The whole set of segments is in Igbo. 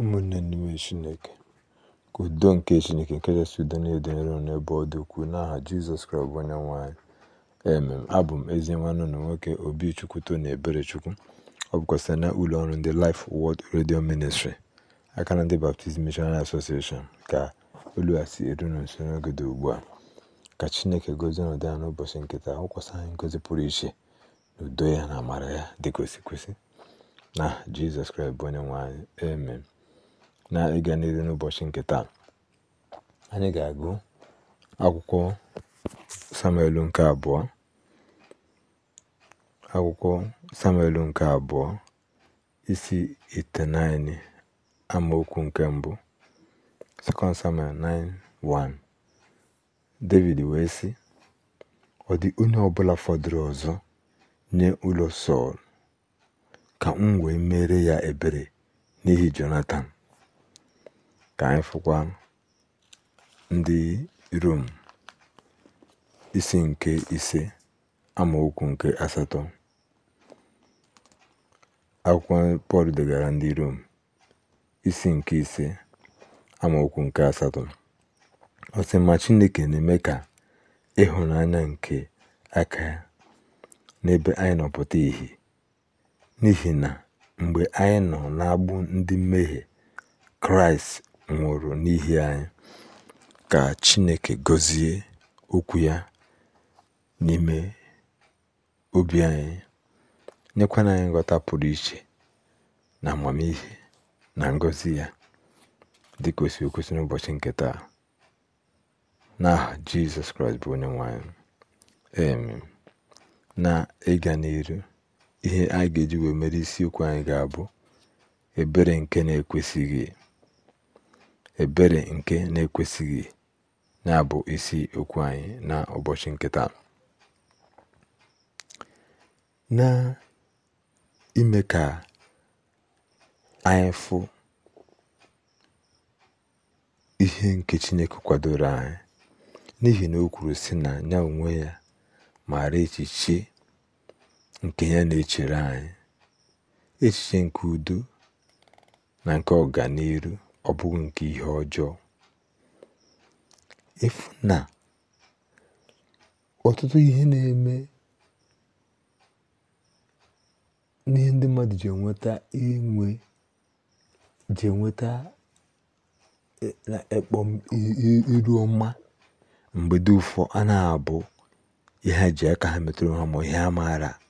ụmụnne n'ime chineke ka udo nke chineke nke kachasị udo niile dị n'ebe ọ dị ukwuu n'aha jizọs kraịst bụ onye nwe emem abụ m ezi nwanne ụlọ nwoke obi chukwuto na ebere chukwu ọ bụkwa site na ụlọ ọrụ ndị Life wọd redio ministri aka na ndị Baptist mishonari Association ka olu a si eru na nso n'oge dị ugbu a ka chineke gozie ọnọdụ ya n'ụbọchị nkịta hụkwasị anyị ngozi pụrụ iche na udo ya na amara ya dịka o kwesị na jizọs kraịst bụ onye nwanyị anyị na ịga n'ihu n'ụbọchị nke taa anyị ga-agụ akwụkwọ samuel nke abụọ akwụkwọ samuel nke abụọ isi itenaini amaokwu nke mbụ 2 samuel 9:1 david wee sị ọ dị onye ọbụla fọdụrụ ọzọ nye ụlọ sọl ka m wee mere ya ebere n'ihi jonathan Ka anyị fụkwa ndị Rom isi nke ise amaokwu nke asatọ akwụkwọ Pọl degara ndị Rom isi nke ise amaokwu nke asatọ ọ Chineke na-eme ka ịhụnanya nke aka n'ebe anyị nọpụta pụta N'ihi na mgbe anyị nọ n'agbụ ndị mmehie, Kraịst nwụrụ n'ihi anyị. Ka Chineke gọzie Okwu ya n'ime obi anyị, nyekwana anyị nghọta pụrụ iche na amamihe na ngọzi ya dị ka o si n'ụbọchị nke taa. N'aha Jizọs Kraịst bụ onye nwanyị Na ịga n'iru ihe anyị ga-eji wee mere isiokwu anyị ga-abụ ebere nke na-ekwesịghị ebere nke na-ekwesịghị na-abụ isi okwu anyị na ụbọchị nkịta na ime ka anyị fụ ihe nke Chineke kwadoro anyị n'ihi na o kwuru si na ya onwe ya maara echiche nke ya na-echere anyị echiche nke udo na nke ọganiru ọ bụghị nke ihe ọjọọ efu na ọtụtụ ihe na-eme n'ihe ndị mmadụ ji enweta inwe ji enweta e, ekpom iru ọma mgbe dị ụfọ a na-abụ ihe ji aka ha metụrụ ha ma ihe amaara. maara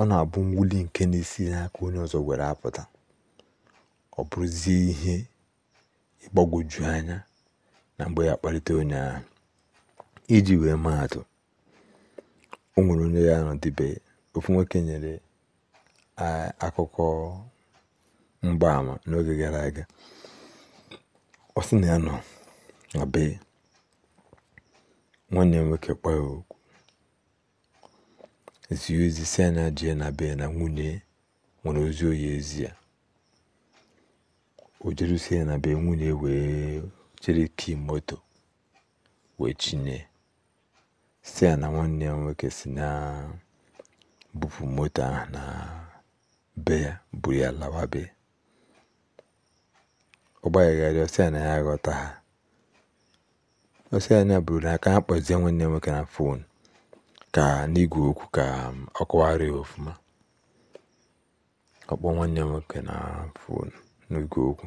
ọ na-abụ mwuli nke na-esi n'aka onye ọzọ were apụta ọ bụrụzie ihe ịgbagwoju anya na mgbe ya kpalite onye ahụ iji wee maatụ o nwere onye ya dịbe ofu nwoke nyere akụkọ mgbaama n'oge gara aga ọ sị na ya nọ na bee, nwanne m nwoke kpọọ zi ozi si na jee na na nwunye nwere ozi oyi ezi ya o jerusi ya na be nwunye wee ki moto wee chinye si ya na nwanne nwoke si na bupụ moto ahụ na be ya buru ya lawa be ọ gbaghagharị na ya aghọta ha ọsị anya na buru na aka ha kpọzie nwanne nwoke na fon ka n'igwe okwu ka um, ọ kọwara ya ọfụma ọ kpọọ nwanne ya nwoke na fonu n'igwe okwu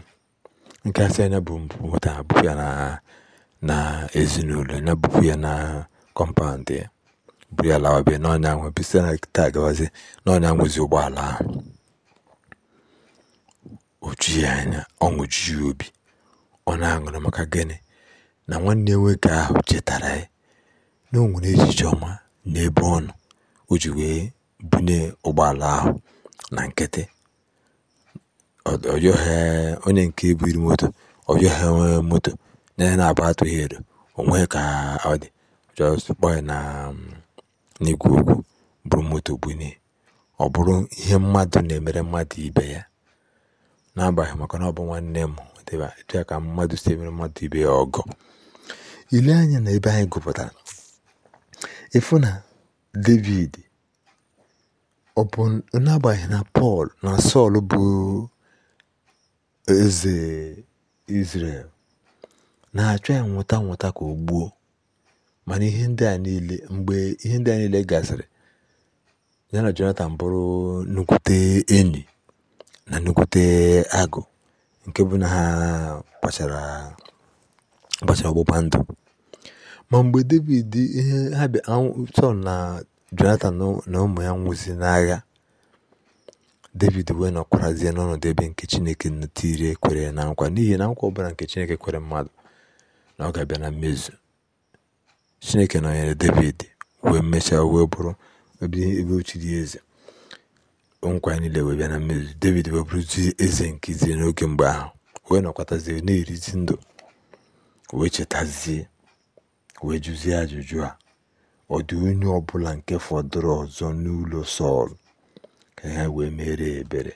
nke a sị ya nya bụ mpụ nwata abụpụ ya na na ezinụlọ ya bụpụ ya na kọmpaụndụ ya buru ya lawa be n'ọnya nwe bisi na taa gawazie n'ọnya nwezi ụgbọala ahụ ojughị anya ọṅụ jughị obi ọ na-aṅụrị maka gịnị na nwanne nwoke ahụ chetara ya na o nwere echiche ọma n'ebe ọ nọ o ji wee bune ụgbọala ahụ na nkịtị onye nke buru moto ọ onwe moto n'ihi na abụọ atụghị edo onwe nweghị ka ọ dị just kpọọ ya na um, n'igwe okwu bụrụ moto bunye ọ bụrụ ihe mmadụ na-emere mmadụ ibe ya n'agbaghị maka na ọ bụ nwanne m dịba ka mmadụ si emere mmadụ ibe ya ọgọ ile anya na ebe anyị gụpụtara ịfụ david ọ bụ n'agbàghị̀ na Pọl na Sọl bụ eze Izrel na-achọ ya nwụta nwụta ka o gbuo mana ihe ndị a niile mgbe ihe ndị a niile gasịrị ya na Jonatan bụrụ nnukwute enyi na nnukwute agụ nke bụ na ha gbachara ọgbụgba ndụ Ma mgbe Devid ihe ha Sọl na jonathan na ụmụ ya nwụsịrị n'agha, david wee nọkwarazie n'ọnọdụ ebe nke Chineke tiiri kwere na nkwa n'ihi na nkwa ọbụla nke Chineke kwere mmadụ na ọ ga-abịa na mmezu Chineke nọnyere david wee mechaa wee bụrụ ebe dị eze nkwa niile wee bịa na mmezu david wee bụrụzie eze nke Izrel n'oge mgbe ahụ wee nọkwatazie na-erizi ndụ wee chetazie wee ajụjụ a ọ dị onye ọbụla nke fọdụrụ ọzọ n'ụlọ Sọl ka ha wee mere ebere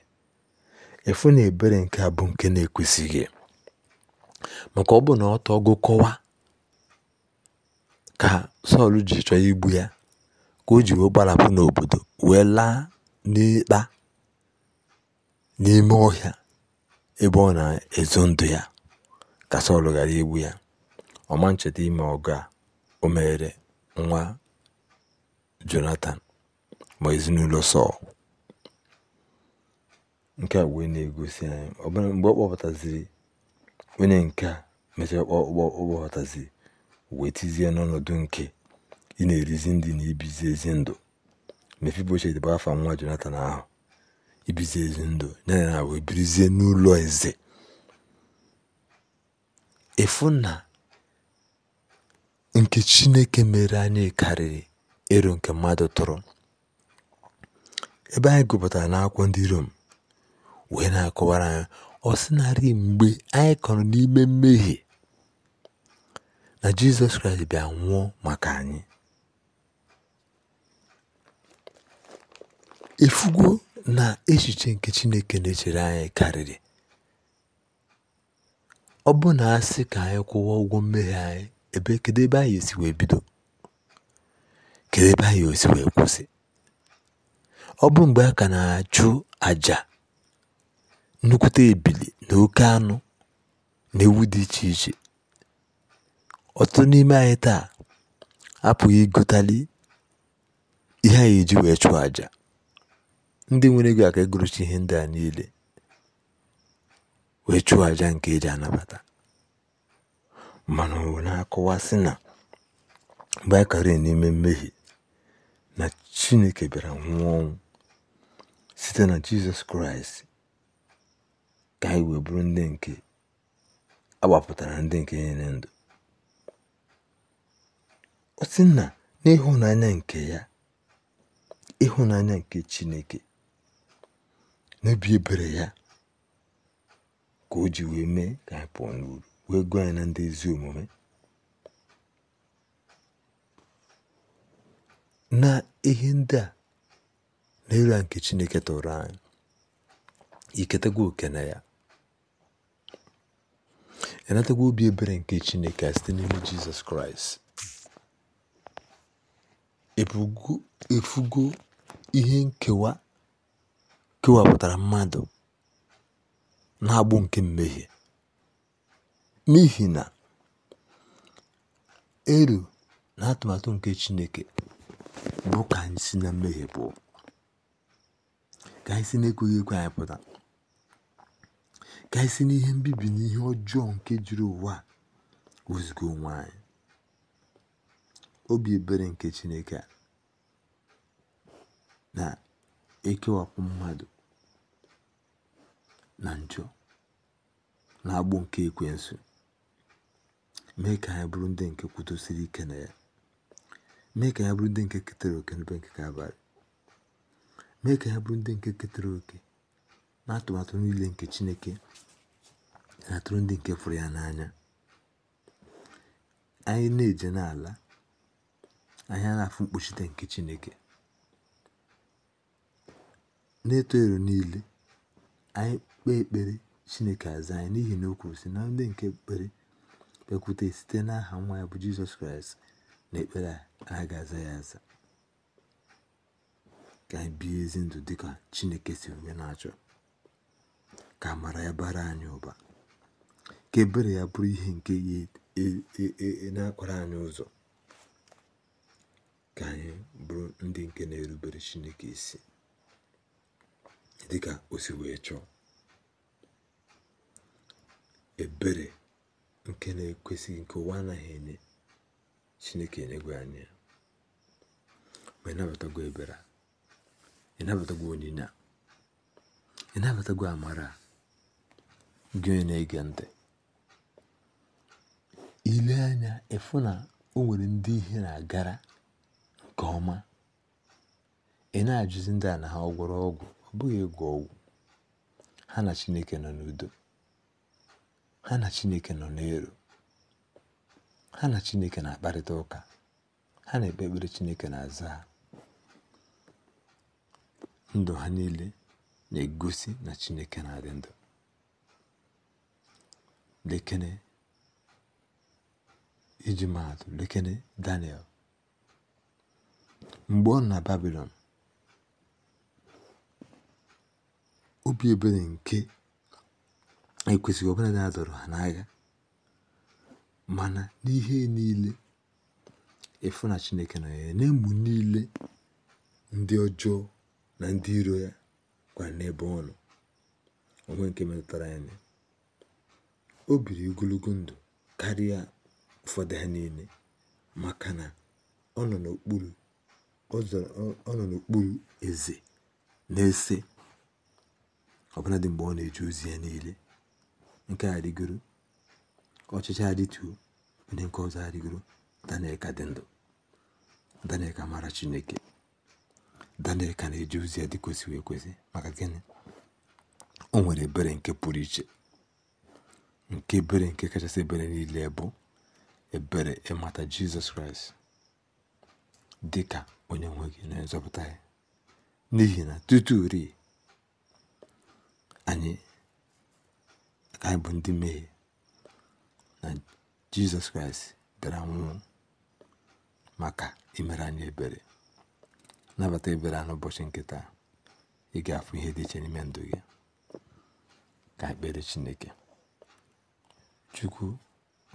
efu na ebere nke a bụ nke na-ekwesịghị maka ọ bụ na ọ tọgo kọwa ka Sọl ji chọọ igbu ya ka o ji wee gbarapụ n'obodo wee laa n'ịkpa n'ime ọhịa ebe ọ na-ezo ndụ ya ka Sọl ghara igbu ya ọma ncheta ime ọgụ a o meere nwa jonathan ma ezinụlọ Sọl nke a wee na-egosi anyị ọbụna mgbe ọ kpọpụtaziri onye nke a mechaa ọkpọpụtaziri wee tizie n'ọnọdụ nke ị na-erizi ndị na ibizi ezi ndụ Mefiboshet bụ afa nwa jonathan ahụ ibizi ezi ndụ ya na wee birizie n'ụlọ eze efu nke Chineke mere anyị karịrị ero nke mmadụ tụrụ, ebe anyị gụpụtara n'akwụkwọ ndị Rom wee na-akọwara anyị ọ sị narị mgbe anyị kọrọ n'ime mmehie na Jizọs Kraịst bịa nwụọ maka anyị efugo na echiche nke Chineke na-echere anyị karịrị ọ bụ na sị ka anyị kwụwa ụgwọ mmehie anyị ebe kedu ebe anyị esi wee bido kedu ebe anyị esi wee kwụsị ọ bụ mgbe a ka na-achụ àjà nnukwute ebili na oke anụ na ewu dị iche iche ọtụtụ n'ime anyị taa apụghị ịgụtali ihe anyị eji wee chụọ àjà ndị nwere ego aka egorochi ihe ndị a niile wee chụọ àjà nke eji anabata mana ọ na-akọwasị na baịkari n'ime mmehie na chineke bịara nwụọ ọnwụ site na jizọs kraịst ka anyị wee bụrụ ndị nke agbapụtara ndị nke nyere ndụ ọ na n'ịhụnanya nke ya ịhụnanya nke chineke n'obi ebere ya ka o ji wee mee ka anyị pụọ n'uru wee gwa anyị ndị ezi omume na ihe ndị a na nke Chineke tụrụ anyị iketagwa oke na ya ịnatagwa obi ebere nke Chineke site n'ime Jizọs Kraịst efugo ihe nkewa kewapụtara mmadụ na-agbụ nke mmehie n'ihi na elu na atụmatụ nke Chineke bụ ka anyị si na mmehie pụọ ka anyị si na-ekweghị ekwe anyị pụta ka anyị si n'ihe mbibi na ihe ọjọọ nke juru ụwa wezuga onwe anyị obi ebere nke Chineke na-ekewapụ mmadụ na njọ na agbụ nke ekwensu mee ka anyị bụrụ ndị nke kwudosiri ike na ya mee ka anyị bụrụ ndị nke ketere oke n'ebe nke abalị mee ka anyị bụrụ ndị nke ketere oke na atụmatụ niile nke chineke na-atụrụ ndị nke fụrụ ya n'anya anyị na-eje n'ala anyị na-afụ mkpuchite nke chineke na-eto ero niile anyị kpee ekpere chineke aza anyị n'ihi na o kwuru sị na ndị nke ekpere kpekwute site n'aha nwa ya bụ jizọs kraịst na ekpere a ga-aza ya aza ka anyị bie ezi ndụ dịka chineke si onye na-achọ ka mara ya bara anyị ụba ka ebere ya bụrụ ihe nke ya e, e, e, na-akwara anyị ụzọ ka anyị bụrụ ndị nke na-erubere chineke isi dịka o si wee chọọ ebere nke na-ekwesịghị nke ụwa anaghị enye chineke enyegwe anyị ma ịnabatagwo ebere ịnabatagwo onyinye a ịnabatagwo amara gị onye na-ege ntị ile anya ịfụ na o nwere ndị ihe na-agara nke ọma ị na-ajụzi ndị a na ha ọgwụrụ ọgwụ ọ bụghị ịgwọ ọgwụ ha na chineke nọ n'udo ha na Chineke nọ n'elu ha na Chineke na-akparịta ụka ha na-ekpe ekpere Chineke na-aza ha ndụ ha niile na-egosi na Chineke na-adị ndụ lekene iji maatụ lekene Daniel mgbe ọ na babilon obi ebere nke ekwesịghị ọbụladị a dọrọ ha n'agha mana n'ihe niile ịfụ na chineke na ya niile ndị ọjọọ na ndị iro ya gwara n'ebe ọ nọ onwe nke metụtara ya o biri ogologo ndụ karịa ụfọdụ ha niile maka na ọ nọ n'okpuru eze na-ese ọbụladị mgbe ọ na-eje ozi ya niile nke a dịgoro ọchịchị adịtụ ndị nke ọzọ adịgoro daniel ka dị ndụ daniel ka mara chineke daniel ka na-eji ozi ya dị kwesịrị ekwesị maka gịnị o nwere ebere nke pụrụ iche nke ebere nke kachasị ebere niile bụ ebere ịmata jizọs kraịst dị ka onye nwe gị na nzọpụta ya n'ihi na tutu ri anyị anyị bụ ndị mmehie na jizọs kraịst bịara nwụọ maka imere anyị ebere nabata ebere a n'ụbọchị nkịta ị ga-afụ ihe dị iche n'ime ndụ gị ka ekpere chineke chukwu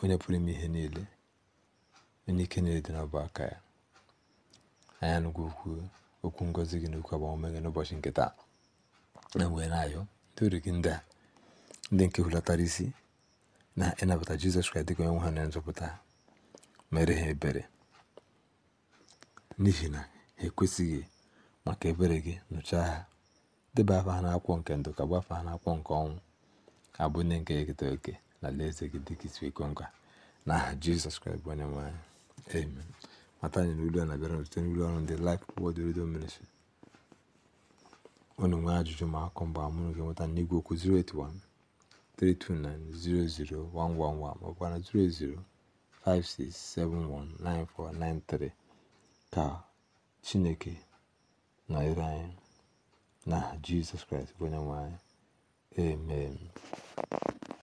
onye pụrụ ime ihe niile onye ike niile dị n'ọbụ aka ya anya n'ugwu okwu okwu ngọzi gị na okwu agbamume gị n'ụbọchị nkịta na e wee na-ayọ ndị gị ndị a ndị nke hulatara isi na ịnabata e jizọs kraịst dịka onye nwe ha na nzọpụta mere ha ebere n'ihi na ha ekwesịghị maka ebere gị nụchaa ha deba afa ha n'akwụkwọ nke ndụ ka gbafa ha n'akwụkwọ nke ọnwụ abụ ndị nke ekete oke na alaeze gị dịka isi iko nka na aha jizọs kraịst bụ onye nwe anyị amen mata anyị n'ụlọ a na-abịara site n'ụlọ ọrụ ndị Life Word Radio Ministry unu nwee ajụjụ ma akụ mgbe amụrụ gị nweta n'igwe okwu 081 081 maọbụ 08056719493 Ka Chineke na anyị. na Jizọs Kraịst bụ Onyenwe anyị. Amen.